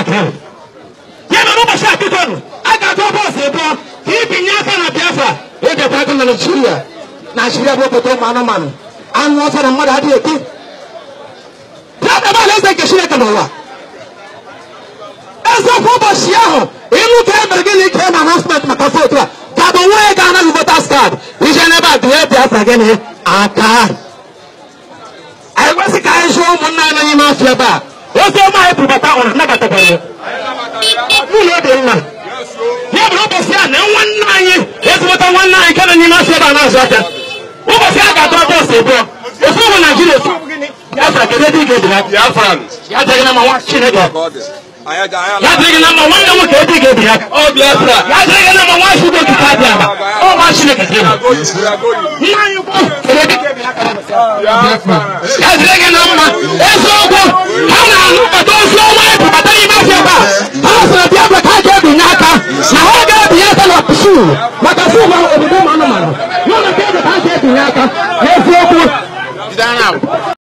aka yana ruba sha bidon aka to ba sai ba kibin na kana e biafra ya da ta kana shirya na shirya boko o manu manu an wasa da mara hadiye ki ta da ba lai ke shirya kana wa esa ko ba shi aho inu ta mergili ke na announcement maka fotra ka bo we ga na voters card ije ne ba duwe biafra gene aka ai wasi ka ai e sho mun na na ni mafia ba ozi ọma anyị bụrụbata ọrụ nabatabanye n'ụlọ obi nna ya bụrụ ụbọchị a na nwanne anyị ezigbota nwanne anyị nke na n'ime ma ebe a na-azụ aka ụbọchị a ga-atọ bọọsụ abụọ ofu ebe ị ga-ebi ya na ya na ya na ya na uru maka si ụwa obodo ụmụ anụmanụ n'ụlọ nke eze ka ha si etinye aka n'eziokwu